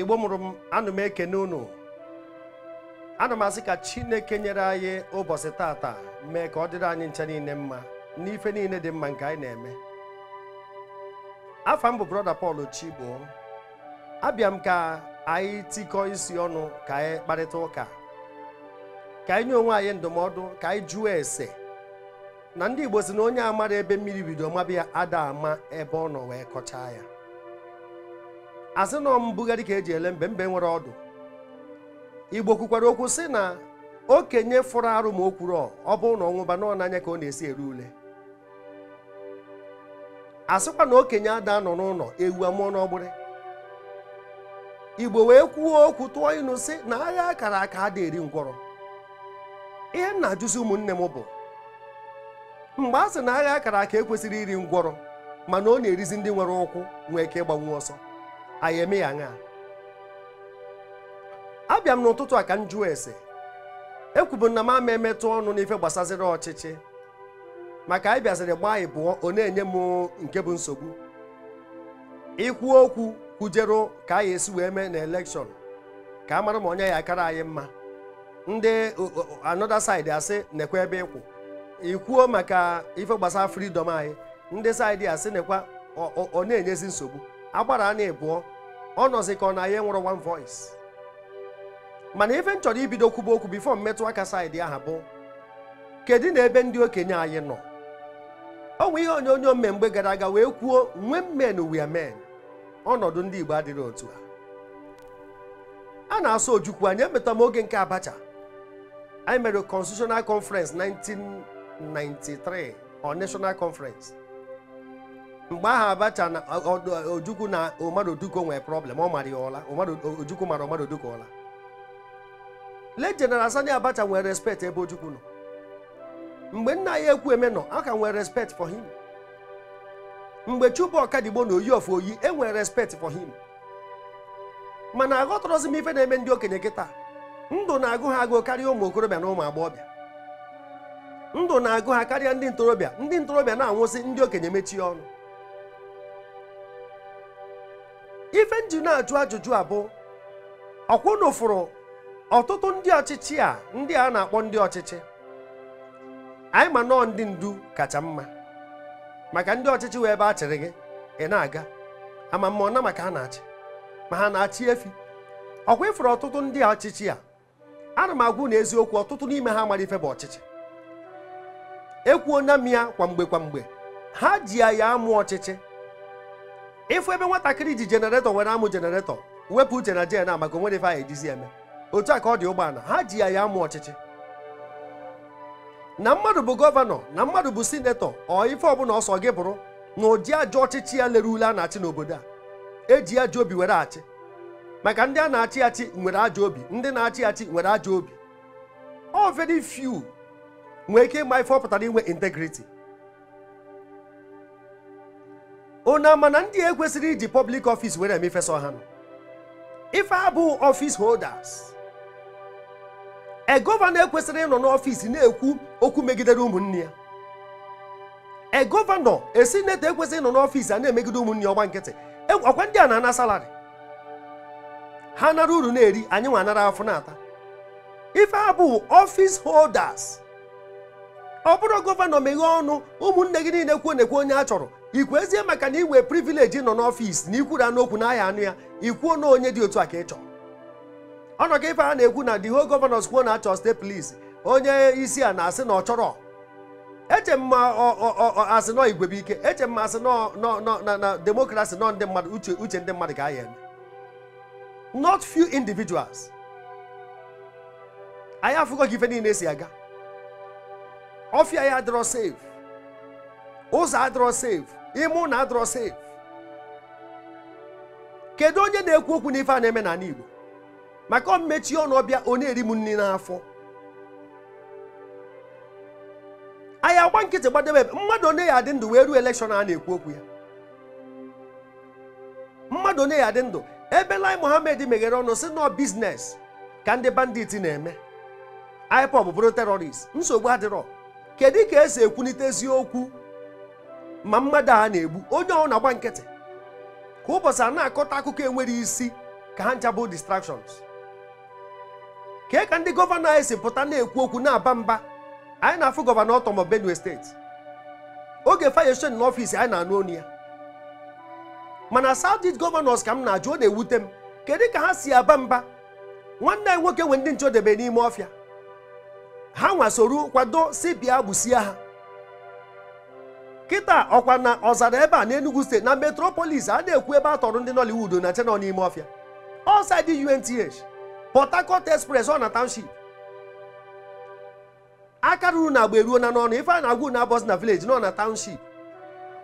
igbo mụrụ m anụ m ekene unu ana m asị ka chineke nyere anyị ụbọchị tata mee ka ọ dịrị anyị ncha niile mma n'ife niile dị mma nke anyị na-eme afa m bụ brọda Paul chigboo abịa m ka anyị tikọọ isi ọnụ ka anyị kparịta ụka ka anyị nye onwe anyị ndụmọdụ ka anyị jụọ ese na ndị igbo si na onye amara ebe mmiri bido mabịa ada ama ebe ọ nọ wee kọchaa ya asị nọ mbugharị ka eji ele mbe mbe nwere ọdụ igbo kwukwara okwu sị na okenye fụrụ arụ ma o kwuru ọ bụrụ na ọnwụba nọ n'anya ka ọ na-esi eri ule asịkwa na okenye ada nọ n'ụlọ ewu amụọ n'ọgbụrị igbo wee kwuo okwu tụọ ịnụ sị na agha akara aka ada eri ngwọrọ ihe m na-ajụzi ụmụnne m bụ mgbe a sị na agha akara aka ekwesịrị iri ngwọrọ mana ọ na-erizi ndị nwere ụkwụ nwee ike ịgbanwu ọsọ anyị eme ya aṅa abịa m n'ụtụtụ a ka m jụọ ese ekwubu na m ama emetụ ọnụ n'ife gbasaziri ọchịchị maka anyị bịaziri gbaa ịbụọ ọ na-enye m nke bụ nsogbu ikwu okwu kwujere ka anyị esi wee mee na elekshọn ka a mara ma onye ya akara anyị mma ndị anoda saịdị asị nekwa ebe ịkwụ ikwuo maka ife gbasara fridọm anyị ndị saịdị asị nekwa ọ na-enyezi nsogbu agbara na ịbụọ ọ nọzi ka ọ na ya e nwụrụ one voice mana ife m chọrọ ibido kwuba okwu bifo mmetụ aka saịdị aha bụ kedu na ebe ndị okenye anyị nọ ọ nwe ihe onye mme mgbe gara aga wee kwuo nwe men we men ọnọdụ ndị Igbo adịrị otu a a na-asọ ojukwu anyị emeta m oge nke Abacha anyị mere constitutional conference 1993 or national conference mgbe ahụ abacha na ojukwu na omaroduko nwere problem ọ mara ya ụla ojukwu mara omaroduko ụla le Sani abacha nwere respect ebe ojukwu nọ mgbe nna ya ekwu eme nọ a nwere respect for him mgbe chukwu ọkadigbo na oyi of oyi e nwere respect for him mana aghọtọrọzi m ife na-eme ndị okenye kịta ndụ na-agụ ha agụụ karịa ụmụ okorobịa na ụmụ agbọghọbịa ndụ na-agụ ha karịa ndị ntorobịa ndị ntorobịa na-anwụsị ndị okenye mechie ọnụ ife nji na-ajụ ajụjụ abụ ọkwụnụ fụrụ ọtụtụ ndị ọchịchị a ndị a na-akpọ ndị ọchịchị anyị ma nọọ ndị ndu kacha mma maka ndị ọchịchị wee ebe a chịrị gị ị na-aga ama mma ọna maka ha na-achị ma ha na-achị efi ọkwa ịfụrụ ọtụtụ ndị ọchịchị a ana m agwụ na eziokwu ọtụtụ n'ime ha mara ife bụ ọchịchị ekwuo na m ya kwamgbe kwamgbe ha ji ya ya amụ ọchịchị ịfụ ebe nwatakịrị ji jenareto nwere amụ jenareto wepụ uche na jena maka onwere ife anyị ejizi eme otu a ka ọ dị ụgbọala ha ji ya ya amụ ọchịchị na mmadụ bụ gọvanọ na mmadụ bụ sinetọ ọ ife ọbụla ọsọ gị bụrụ na ụdị ajọ ọchịchị ya lere ule a na-achị n'obodo a eji ajọ obi were achị maka ndị a na-achị achị nwere ajọ obi ndị na-achị achị nwere ajọ obi ọ very few nwee ike ịma ife ọ pụtara inwe integrity ụna ama na ndị ekwesịrị iji public office were emefesa ha ife abụ office holders e gọvanọ ekwesịrị ịnọ n'ọfịs na-ekwu okwu megidere ụmụnne ya e gọvanọ esi neta ekwesịrị ịnọ n'ọfịs a na-emegide ụmụnne ọgba nkịtị e, ọkwa ndị a na-ana salarị ha nara uru na-eri anyị nwa anara afọ na-ata ife abụ office holders ọ bụrụ gọvanọ meghee ọnụ ụmụnne gị niile kwuo na-ekwu onye a chọrọ ikwu ezie maka na iwe privileji nọ n'ọfịs na ikwura n'okwu na aha anụ ya ikwuo na onye dị otu a ka ị chọrọ ọnọ ka ife a na-ekwu na the whole governors kwuo na achọ state police onye isi a na-asị na ọ chọrọ eche m asị nọ igwe ike eche m asị na demokrasi nọ ndị mmadụ uche ndị mmadụ ga-aya not few individuals anyị afụgo gị ife niile si aga ọfịa ya adịrọ safe ụzọ adịrọ safe ime na adọrọ sef kedu onye na-ekwu okwu n'ife a na-eme n'ala Igbo maka ọmmechi ọnụ ọbịa ọ na-eri m nri n'afọ anyị agba nkịtị gbadebe mmadụ onye ya adị ndụ wee ruo elekshọn a na-ekwu okwu ya mmadụ onye ya adị ndụ ebe lai mohammed meghere ọnụ si nọ biznes ka ndị banditi na-eme ipob bụrụ terọrist nsogbu adịrọ kedu ka esi ekwulite eziokwu ma mmadụ a na-egbu onye ọhụrụ na-agba nkịtị ka ụbọchị a na-akọta akụkọ enwere isi ka ha nchabụ distractions kee ka ndị gọvanọ anyị si pụta na-ekwu okwu na-aba mba anyị na-afụ gọvanọ ọtọmọ benue steeti oge fayeshon n'ọfịs anyị na-anụ onu ya mana south gọvanọs ka m na-ajụ ọ na-ewute m kedu ka ha si aba mba nwanne anyị nwoke nwe ndị nchodebe n'ime ọfịa ha nwa soro kwado si bịa gbusie ha kịta ọkwa na ọzara ebe a na Enugu steeti na metropolis a na-ekwu ebe a tọrọ ndị Nollywood na chenọ n'ime ọfịa ọsaidi UNTH Port Harcourt Express ọ na township aka ruru na agba eruo na n'ọnụ ife a na-agwụ na abọzi na village nọ na township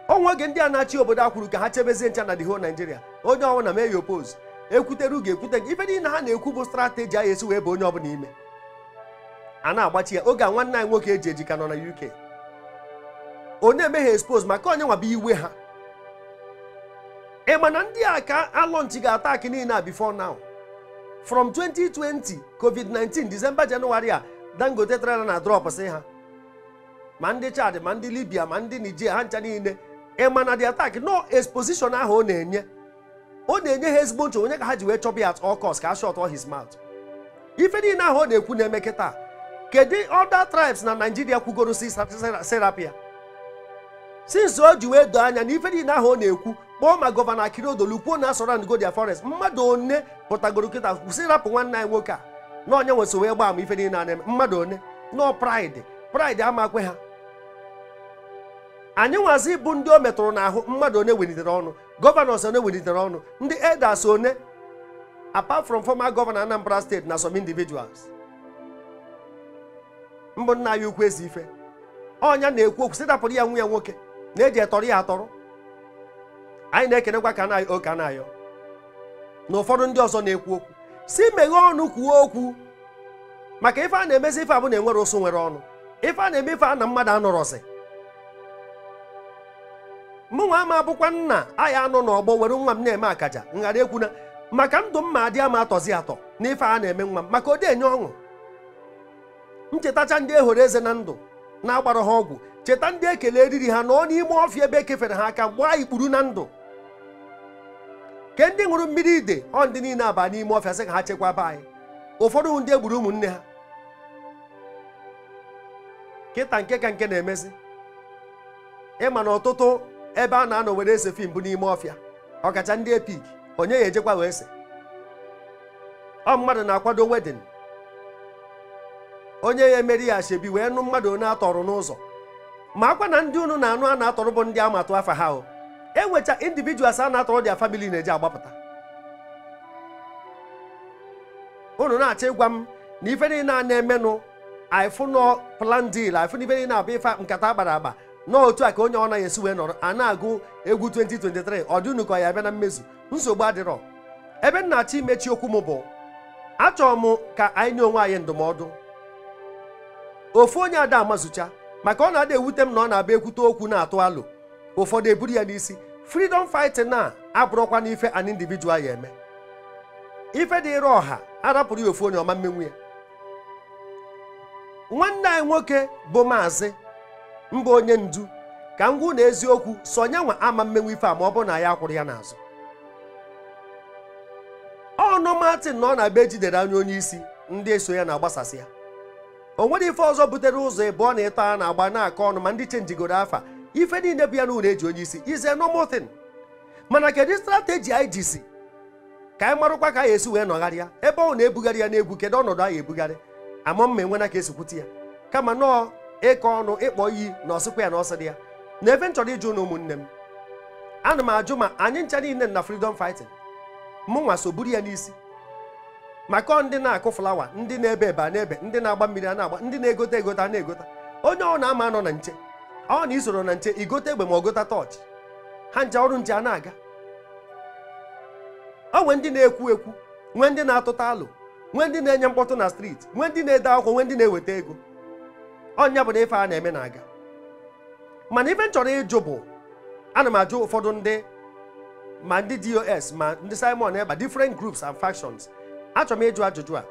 onwe oge ndị a na-achị obodo a kwuru ka ha chebezie ncha na the whole Nigeria onye ọnwụ na meya opos ekwutere ugo ekwute gị ife niile ha na-ekwu bụ strateji a ya esi wee bụ onye ọbụla ime a na-agbachi ya oge a nwanne anyị nwoke eji ejika nọ na UK onye emeghe expose maka onye nwaba iwe ha ị na ndị a ka alọnchi ga-ata akị niile a before now from 2020 covid-19 december january a dangote trela na drop si ha ma ndị chad ma ndị libya ma ndị nigeria ha ncha niile ị na dị atak no exposition ahụ ọ na-enye ọ na-enye ha ezigbo nchọ onye ka ha ji wee chọba ya at all cost ka a shot his mouth ife niile ahụ ọ na-ekwu na-eme kịta kedu other tribes na naijiria kwugoro si serapia since o ji wee doo anya na ife niile ahụ ọ na-ekwu kpọọ ma gọvanọ Akinodolu kwuo na surround Godia Forest mmadụ one pụtagoro kịta kwụsị rapụ nwanne anyị nwoke a na onye nwe wee gbaa ama ife niile na-eme mmadụ one nọọ praịdị pride amakwe ha anyị nwazi bụ ndị o metụrụ n'ahụ mmadụ one welitere ọnụ gọvanọ one welitere ọnụ ndị edas one apart from fọma gọvanọ Anambra steeti na some individuals mbụ nna anyị ukwu ezi ife ọnya na-ekwu okwu ya nwa ya nwoke na-eji etọrọ ya atọrọ anyị na-ekenekwa ka anyị oke anyị na ụfọdụ ndị ọzọ na-ekwu okwu si meghee ọnụ kwuo okwu maka ife a na-emezi ife abụ na enwere ụsụ nwere ọnụ ife a na-eme ife a na mmadụ anọrọzi mụ nwa ama abụkwa nna anyị anọ n'ọgbọ were nwa m na-eme akaja nghara ekwu na maka ndụ mma ma adị ama atọzi atọ na ife a na-eme nwa m maka ode enye ọṅụ nchetacha ndị ehoro eze na ndụ na-agbara ha ọgwụ cheta ndị ekele eriri ha nọ n'ime ọfịa ebe ekefere ha aka gbaa ikpuru na ndụ ke ndị ṅụrụ mmiri ide ọ ndị niile aba n'ime ọfịa sị ka ha chekwaba anyị ụfọdụ ndị egburu ụmụnne ha kịta nke ka nke na-emezi ịma na ọtụtụ ebe a na-anọ were ese fim bụ n'ime ọfịa ọkacha ndị epik onye ya ejekwa wee ese ọ mmadụ na-akwado wedin onye ya emeri ya ashebi wee nụ mmadụ onye atọrụ n'ụzọ ma akwa na ndị unu na-anụ a na-atọrọ bụ ndị a atụ afa ha o enwecha individuals a na-atọrọ dia famili na-eji agbapụta unu na-achọ ịgwa m na ife niile a na-emenụ ifụnọ plan deal ifụnọ ife niile abụ ife nkata agbara agba n'otu a ka onye ọ naghị esi wee nọrọ a na-agụ egwu 2023 ọ dị unu ka ya bịa na mmezu nsogbu adịrọ ebe m na-achọ imechi okwu m bụ achọrọ m ka anyị nye onwe anyị ndụmọdụ ofu onye ada amazucha maka ọ na-ada ewute m na ọ na-abịa ekwute okwu na-atụ alụ ụfọdụ eburu ya n'isi freedom fighting na abụrụkwa na ife an individual ya eme ife dị ịrụ ọha arapụrụ ya ofu onye ọma mmenwu ya nwanne anyị nwoke bụ maazị mba onye ndu ka m gwu na eziokwu so nyanwa ama mmenwu ife a ma ọ bụrụ na ya akwụrụ ya n'azụ ọnụ Martin na ọ na-abịa ejidere anya onye isi ndị eso ya na-agbasasị ya o nwere ife ọzọ butere ụzọ ịbụọ na ịtọ na-agba na-akọ ọnụ ma ndị chenjigoro afa ife niile bụ ya na unu eji onye isi ize nomotin mana kedu strateji anyị jisi ka anyị marụkwa ka anyị esi wee nọgharịa ebe ọ na-ebugharị ya n'egwu kedu ọnọdụ anyị ebugharị ama mma enwena ka esikwute ya kama nọọ ịkọ ọnụ ịkpọ iyi na ọsịkwa ya na ọsị dị ya na ebe m chọrọ ịjụ na ụmụnne m ana m ajụ ma anyị ncha niile na freedom fighting nwa so buru ya n'isi maka ndị na-akụ flawa ndị na-ebe ebe a na-ebe ndị na-agba mmiri a na-agba ndị na-egote egota na-egota onye ọ na-ama anọ na nche ọ na isoro na nche igote egbe ma gota tọọchị ha nje ọrụ nje a na-aga ọ nwee ndị na-ekwu ekwu nwee ndị na-atụta alụ nwee ndị na-enye mkpọtụ na striti nwee ndị na-ede akwụkwọ nwee ndị na-eweta ego ọnya bụ na ife a na-eme na-aga mana ife m chọrọ ịjụ bụ ana m ajụ ụfọdụ ndị ma ndị dos ma ndị simon eba difrent groups and factions achọrọ m ịjụ ajụjụ a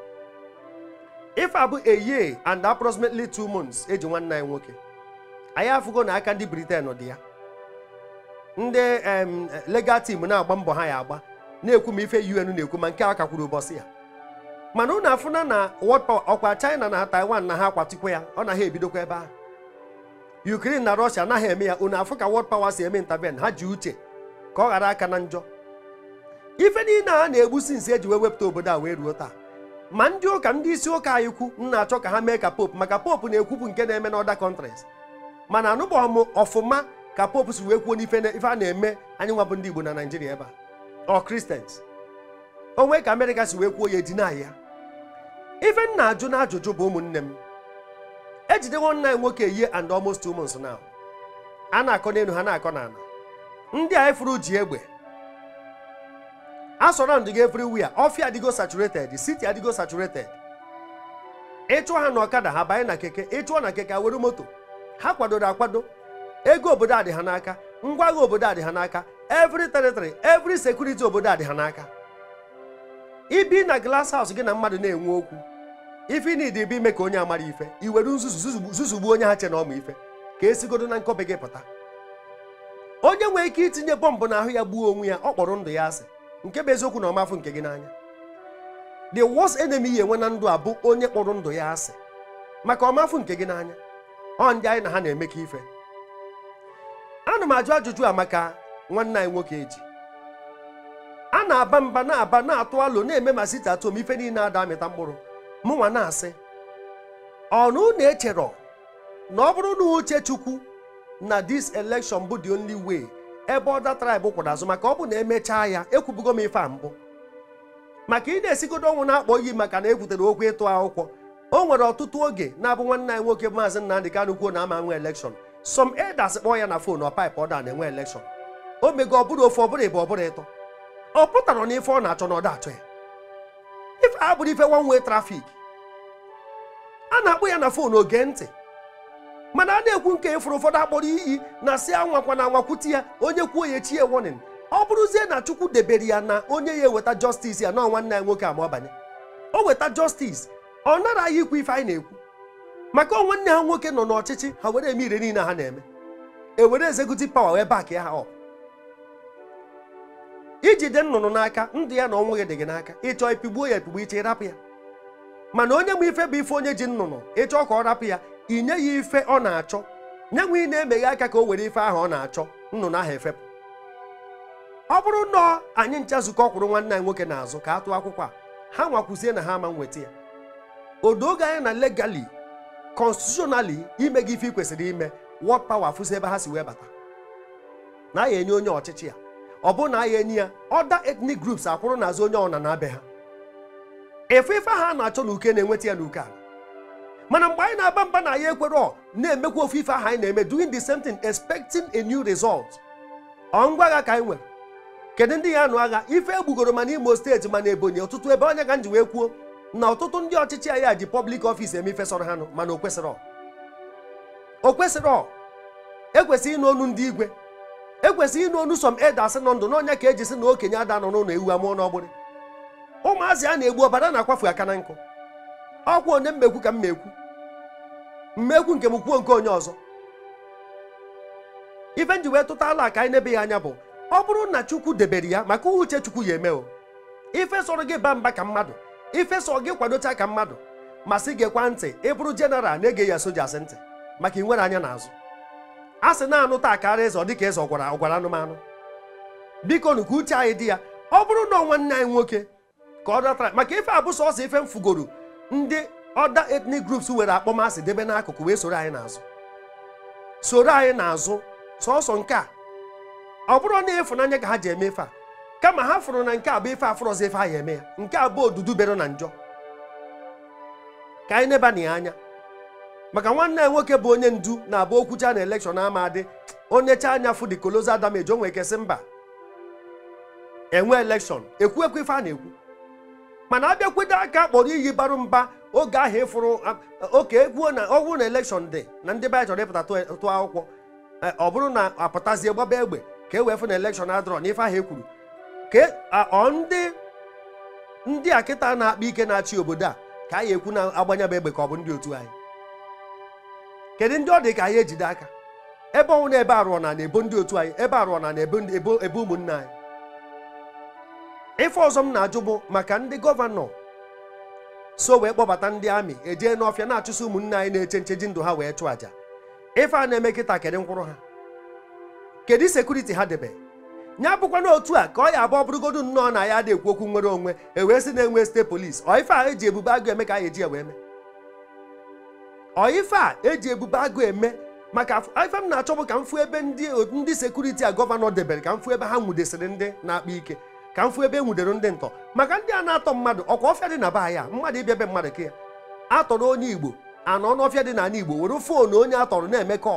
ife abụ a and approximately two months eji nwanne anyị nwoke anyị afụgo na aka ndị Britain dị ya ndị legal team na-agba mbọ ha ya agba na-ekwu ma ife UN na-ekwu ma nke akakwuru kakwuru ya mana ụnụ afụna na world power ọkwa China na Taiwan na ha kwatikwa ya ọ na ha ebidokwa ebe ahụ Ukraine na Russia anaghị eme ya ụnụ afụ ka world power si eme intervene ha ji uche ka ọ ghara aka na njọ ife niile a na-egbusi nsi eji wee wepụta obodo a wee ruo taa ma ndị ụka ndị isi ụka anyị kwu m na-achọ ka ha mee ka pope maka pope na-ekwupụ nke na-eme n'ọda kọntrins mana anụbọghị m ọfụma ka pope si wee kwuo n'ife ife a na-eme anyị nwabụ ndị igbo na naijiria ebe a ọ kristians onwe ka amerịka si wee kwuo ya edina ya ife m na-ajụ na ajụjụ bụ ụmụnne m ejidewo nna anyị nwoke ihe and almost ụmụ months now a na-akọ n'elu ha na-akọ n'ala ndị a furu ji egbe asọrọnd gị everywhere ọfịa adịgo saturated siti adịgo saturated ịchụọ ha na ọkada ha banye na keke ịchụọ na keke were moto ha kwadoro akwado ego obodo adị ha n'aka ngwa agha obodo adị ha n'aka every territory every sekuriti obodo adị ha n'aka ibi na glass house gị na mmadụ na-enwe okwu ife na ịdị be ime ka onye amara ife iwere nzuzu zuzugbu onye ha che na ọma ife ka esigodo na nkọbe gị pụta onye nwere ike itinye bọmbụ n'ahụ ya gbuo onwe ya ọ kpọrọ ndụ ya asị nke bụ eziokwu na ọmafụ nke gị n'anya the worst enemy ya enwe na ndụ a bụ onye kpọrọ ndụ ya asị maka ọmafụ nke gị n'anya ọ ndị anyị na ha na-emekọ ife ana m ajụ ajụjụ a maka nwanne anyị nwoke eji a na-aba mba na-aba na-atụ alo na-eme ma site atụ ife niile ada amịta mkpụrụ mụ nwa na-asị ọnụ na-echerọ na ọ bụrụ na uche chukwu na this election bụ the only way ebe ọda traịbụ kwụrụ azụ maka ọ bụ na emechaa ya ekwubugo m ife a mbụ maka ị na-esigodo ọnwụ na-akpọ iyi maka na ebutere okwu ịtụ akwụkwọ o nwere ọtụtụ oge na-abụ nwanne anyị nwoke maazị Nnamdi Kanu kwuo na ama nwe elekshọn some elders kpọọ ya na fon ọ paịpụ ọ na-enwe elekshọn o mego ọ bụrụ ofe ọ bụrụ ịbụ ọ bụrụ ịtọ ọ pụtara na ife ọ na-achọ na ọ da-achọ ya ife a bụrụ ife nwa nwe trafik a na akpụ ya na fon oge ntị mana a na-ekwu nke ịfụrụ e ụfọdụ akpọrọ iyi na si anwakwa na anwakwuti ya onye kwuo ya chie warning ọ bụrụzie na chukwu debere ya na onye ya eweta justice ya na nwanne ya nwoke ama ọbanye o weta justice ọ naraghị ikwu ife anyị na-ekwu maka nwanne ha nwoke nọ n'ọchịchị ha were eme ire niile ha na-eme ewere executive power wee back ya ha ọ iji nnụnụ n'aka ndụ ya na ọnwụ gị dị gị n'aka ịchọọ pigbuo ya epigbu iche ịrapụ ya mana onye ma ife bụ ife onye ji nnụnụ ịchọọ ka ọ rapụ ya i nye ya ife ọ na-achọ nye nwe ị na-emeghe aka ka o were ife ahụ ọ na-achọ nnụnụ ahụ efepụ ọ bụrụ na anyị ncha zukọ kwụrụ nwanne anyị nwoke n'azụ ka a tụọ akwụkwọ a ha nwakwuzie na ha ama nweta ya odoge anya na legali konstitutionally ime gị ife ị kwesịrị ime wọd pawa fụzi ebe ha si wee bata na aya enye onye ọchịchị ya ọ bụ na aya enye ya ọda ethnic groups akwụrụ n'azụ onye ọna na-abịa ha efe ife ha a na-achọ na uke na-enweta ya n'uke ala mana mgbe anyị na-aba mba na ya ekwere na-emekwa ofe ife ahụ anyị na-eme doing the same thing expecting a new result ọ ngwa agha ka anyị nwere kedu ndị ya anụ agha ife egbugoro mana imo steeti mana ebonyi ọtụtụ ebe onye ka nji ji wee kwuo na ọtụtụ ndị ọchịchị anyị a ji public office eme ife sọrọ ha mana o kwesịrị o kwesịrị ekwesịghị ịnụ onu ndị igwe ekwesịghị ịnụ onu som eda asị nọ ndụ n'ọnya ka eji sị na okenye ada nọ n'ụlọ ewu amụọ nọgbụrị ụmụazị a na-egbu ọbara na-akwafu aka na nkụ ọkwa onye mmekwu ka m mekwu mmekwu nke m kwuo nke onye ọzọ ife nji wee tụta ala ka anyị n'ebe ya anya bụ ọ bụrụ na chukwu debere ya maka uche chukwu ya eme ife sọrọ gị ba mba ka mmadụ ife sọ gị kwadocha ka mmadụ ma sị gị kwa ntị ịbụrụ jeneral na-ege ya soja asị ntị maka nwere anya n'azụ a sị na-anụ taa karịa ịzọ dịka ịzọ gwara ọgwara anụmanụ biko nụ ka uche anyị dị ya ọ bụrụ na nwanne anyị nwoke ka ọ dọtara maka ife abụsọ ọsọ ife mfugoro ndị ọda etnik groups were akpọmasị debe n'akụkụ wee soro anyị n'azụ soro anyị n'azụ sọsọ nke a ọ bụrụ na ịfụnanya ka ha ji eme ife a kama ha fụrụ na nke a bụ ife afụrọzi ife anyị eme ya nke a bụ odudu bero na njọ ka anyị neba na ya anya maka nwanne ya nwoke bụ onye ndu na-abụ okwucha na elekshọn ama adị onye cha anya fụ the colossal damage o nwere kesị mba enwe elekshọn ekwu ekwu ife a na-ekwu mana abịakwute aka kpọrọ iyi barụ mba oge ahụ ịfụrụ oke ekwuo na ọgwụ na elekshọn dị na ndị be chọrọ ịpụta tụọ akwụkwọ e, ọ bụrụ na apụtazie gbaba egbe ka e wee fụ na elekshọn adọrọ n'ife ahụ ekwuru ka e, ndị ndị a kịta na-akpa ike na-achị obodo a ka anyị ekwu na agbanyebe egbe ka ọ bụ ndị otu anyị kedu ndị ọ dị ka anyị ejide aka ebe ọnwụ na ebe arụọ na na-ebo ndị otu anyị ebe arụọ na na ebe ụmụnna anyị ife ọzọ m na-ajụ bụ maka ndị gọvanọ so wee kpọbata ndị amị eje n'ọfịa na-achụso ụmụnne anyị na-eche nche ji ndụ ha wee chụ àjà ife a na-eme kịta kedụ nkwụrụ ha kedu sekuriti ha debe ya bụkwana otu a ka ọ ya abụ bụrụgodu nnọọ na ya adịghị okwu nwere onwe ewee sị na-enwe site polis ọife a eji ebube agụ eme ka a eji ewe eme ọife a eji ebube agụ eme maka ife m na-achọ bụ ka m fụ ebe ndị sekuriti a gọvanọ debere ka m fụ ebe ha nwudesịrị ndị na-akpa ike ka m fụ ebe e nwudere ndị ntọ maka ndị a na-atọ mmadụ ọkwa ọfịa dị na be ya mmadụ ịbịa ebe mmadụ ka atọrọ onye igbo anọ n'ọfịa dị n'ala igbo were foonu onye atọrọ na-emekọ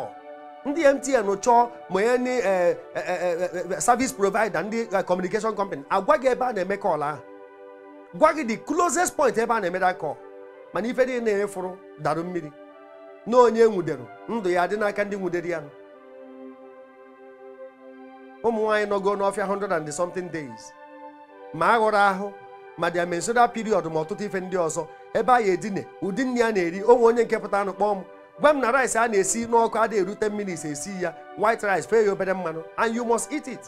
eme ndị mtn chọọ ma ya ndị eh, eh, eh, service provider ndị communication company agwa gị ebe a na-eme kọl ahụ gwa gị the closest point ebe a na-emeda kọl mana ife dị na-emefụrụ darụ mmiri na onye e nwudere ndụ ya dị n'aka ndị nwudere ya ụmụ nwaanyị nọgo n'ọfịa 100 and something days ma aghọrọ ahụ ma dia mensural ma ọtụtụ ife ndị ọzọ ebe anyị edine ụdị nri a na-eri onwe onye nke pụta anụ kpọọ m gwa m na rice a na-esi n'ọkụ adịghị eru 10 esi ya white rice fee ya obere mmanụ and you must eat it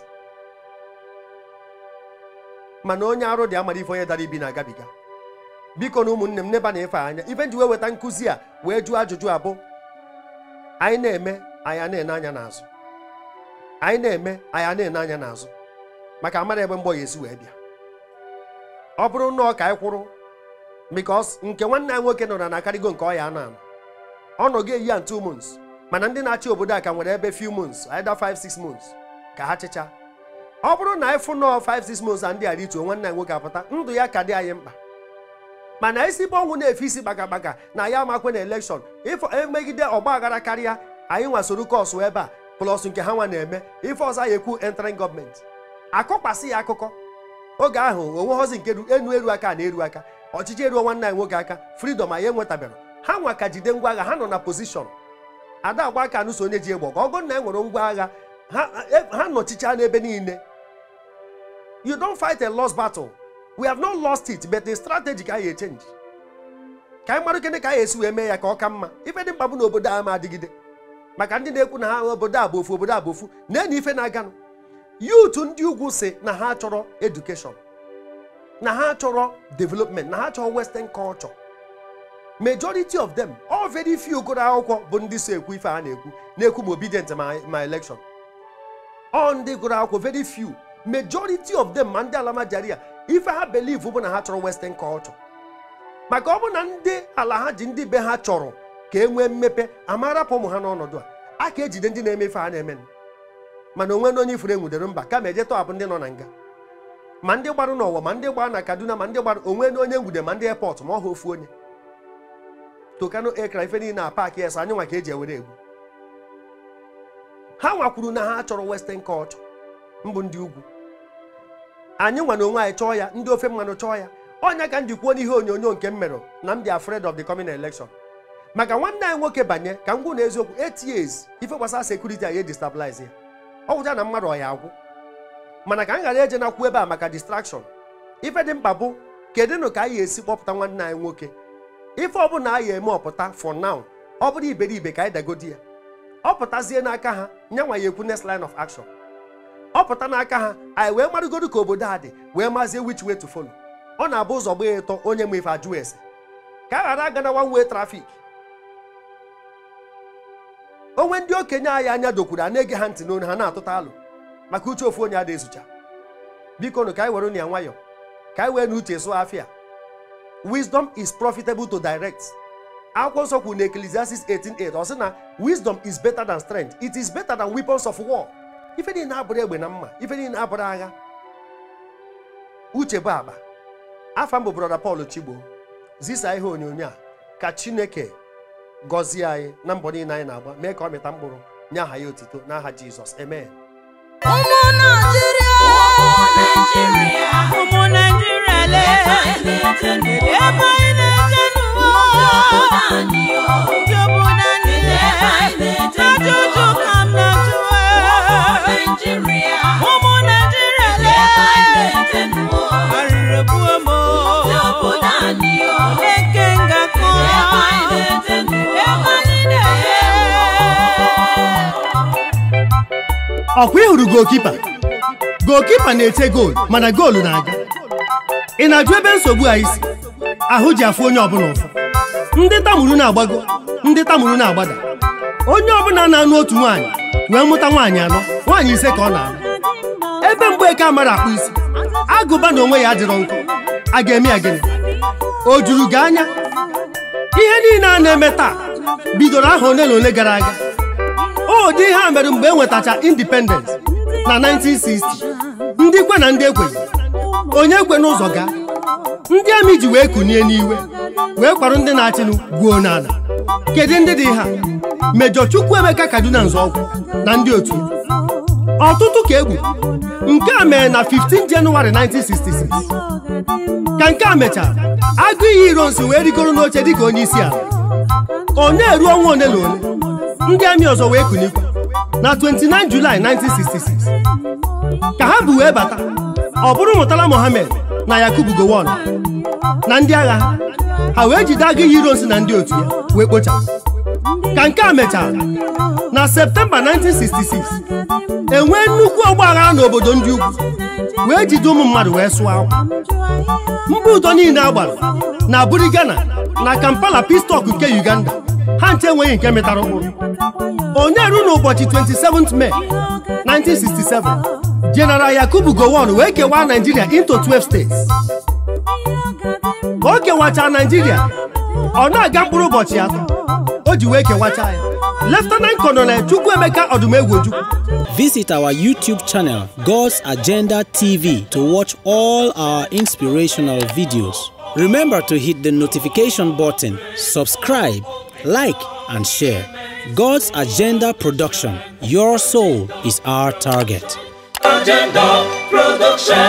mana onye arụ dị amara ife onye dara ibi na-agabiga biko na ụmụnne m n'ebe na-efe anya ife nji wee weta nkụzi a wee jụọ ajụjụ abụ anyị na-eme anyị na-ene anya n'azụ anyị na-eme anyị na-ene anya n'azụ maka amara ebe mgbọ ya esi wee bịa ọ bụrụ na ka anyị kwụrụ because nke nwanne ya nwoke nọ na na nke ọya anọ anọ ọ nọ ga-eyi ya two months mana ndị na-achị obodo a ka nwere ebe few months either 5 6 months ka ha chịcha ọ bụrụ na anyị fụnọ 5 6 months a ndị a rituo nwanne ya nwoke apụta ndụ ya ka dị anyị mkpa mana isi bụ ọnwụ na-efe isi gbagabaga na ya amakwe na elekshọn ịfọ emegide ọgba aghara karịa anyị nwasoro kọsụ ebe a plọs nke ha nwa na-eme ife ọzọ ya ekwu entering gọọmenti akụkwasị ya akụkọ oge ahụ onweghọzi nke enu eru aka na-eru aka ọchịchị eruo nwanne anyị nwoke aka fridọm anyị enwetabịara ha nwa ka jide ngwa agha ha nọ na pozishọn ada agba aka anụso onye ji egbo ka ọgụ na e nwere ngwa agha ha e, nọchicha n'ebe niile you don't fight a lost battle we have not lost it but the strategy ka anyị echenji ka anyị mara kene ka anyị esi wee mee ya ka ọ ka mma ife dị mkpa bụ na obodo a ma adịgide maka ndị na-ekwu na ha obodo a bụ ofu obodo a bụ ofu na-enye ife na-aganụ yut ndị ugwu si na ha chọrọ edukeshọn na ha chọrọ development na ha chọrọ western culture majority of them all very few gụrụ akwụkwọ bụ ndị so ekwu ife a na-ekwu na-ekwu ma obedient my election ọ ndị gụrụ akwụkwọ very few majority of them ma ndị alamajaria ife ha believe bụ na ha chọrọ western culture maka ọ bụ na ndị ala ha ji ndị be ha chọrọ ka e nwee mmepe amarapụ ụmụ ha n'ọnọdụ a a ka ejide ndị na-eme ife a na-eme mana onwe na onye ifuru enwudere mba kama eje tọhapụ ndị nọ na nga ma ndị gbara n'ụwa ma ndị gbara na kaduna ma ndị gbara onwe na onye nwude ma ndị airport ma ọ ha ofu onye tokano ekra ife niile na paakị esa anyị nwa ka eji ewere egwu ha nwakwuru na ha chọrọ western Kọt mbụ ndị ugwu anyị nwa na onwe anyị chọọ ya ndị ofe mmanụ chọọ ya ọnya ka m ji kwuo n'ihe onyonyo nke m na m dị afraid of the coming election maka nwanne anyị nwoke banye ka m gwụ na eziokwu eight years ife gbasara sekuriti anyị edestabilize ya ọgwụcha na mmadụ ọya agwụ mana ka anyị ghara eje na-akwụ ebe a maka distraction ife dị mkpa bụ kedụnụ ka anyị esi kpọpụta nwanne anyị nwoke ife ọbụla anyị eme ọpụta for now ọ bụrụ iberibe ka anyị dagodi ya ọ pụtazie n'aka ha nwa ya ekwu next line of action ọ pụta n'aka ha anyị wee marụgodo ka obodo a dị wee mazie which way to follow ọ na-abụ ụzọ gbaa ịtọ onye ma ife ajụ ese ka a ghara aga na one way onwe ndị okenye anyị anya dokwuru a na-ege ha ntị n'onu ha na-atụta alụ maka uche ofu onye a ezucha biko nụ ka anyị were ya nwayọ ka anyị wee na uche sụọ afịa wisdom is profitable to direct akwụkwọ nsọ kwuru na Ecclesiastes 18:8 ọ sị na wisdom is better than strength it is better than weapons of war ife niile abụrụ egbe na mma ife niile abụrụ agha uche bụ agba afa mbụ brọda Paul Chigbo zisa ihe onyonyo a ka Chineke gọzie anyị na mbọ niile anyị na-agba mee ka ọ mịta mkpụrụ nye aha ya otito n'aha Jizọs amen ụmụ na-eje n'ụwa obodo ọkwa ịhụrụ gokipa gokipa na-ete goolu mana goolu na-aga ị na-ajụ ebe nsogbu a isi ahụ ji afụ onye ọbụla ụfụ ndị tamuru na-agbago ndị tamuru na-agbada onye ọbụla na-anụ otu nwaanyị wee mụta nwaanyị anọ nwaanyị ise ka ọ na-alụ ebe Mgbeke amara akpụ isi agụba na onwe ya adịrọ nkụ a ga-eme ya gịnị o juru gị anya ihe niile a na-eme taa bidoro aha ole na ole gara aga ụdị ihe a mere mgbe e nwetacha independence na 1960 ndị kwe na ndị ekwe onye kwe n'ụzọ gaa ndị amị ji wee kunie n'iwe wee kwarụ ndị na-achịnụ gwuo n'ala kedu ndị dị ha mejọ Chukwuemeka Kaduna Nzọụkwụ na ndị otu ọtụtụ ka egbu nke a mere na 15 Jenụwarị 1966 ka nke a mechara agụ iyi Irons wee rigoro n'oche dịka onye isi ala onye eruo ọnwa ole na ole ndị amị ọzọ wee kunikwu na 29 Julaị 1966 ka ha bụ wee bata ọ bụrụ Murtala Mohammed na Yakubu Gowon na ndị agha ha wee jide agụ iyi Irons na ndị otu ya wee kpochapụ ka nke a mechara na septemba 1966 enwee nnukwu ọgbaghara n'obodo ndị ugwu wee jide ụmụ mmadụ wee sụọ akwa mba ụdọ niile agbara na buri Ghana na Kampala Pistok nke Uganda ha nche enweghị nke metara ụkpụrụ onye ruo n'ụbọchị 27 Mee 1967 General Yakubu Gowon wee kewaa Nigeria into 12 states ka o kewachaa Nigeria ọ na-aga mkpụrụ ụbọchị atọ o ji wee kewacha ya Lieutenant Colonel Chukwemeka Visit our YouTube channel, God's Agenda TV, to watch all our inspirational videos. Remember to hit the notification button, subscribe, like, and share. God's Agenda Production. Your soul is our target. Agenda Production.